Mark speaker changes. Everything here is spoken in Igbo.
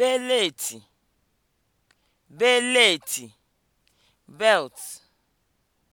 Speaker 1: beleeti (beleti) belt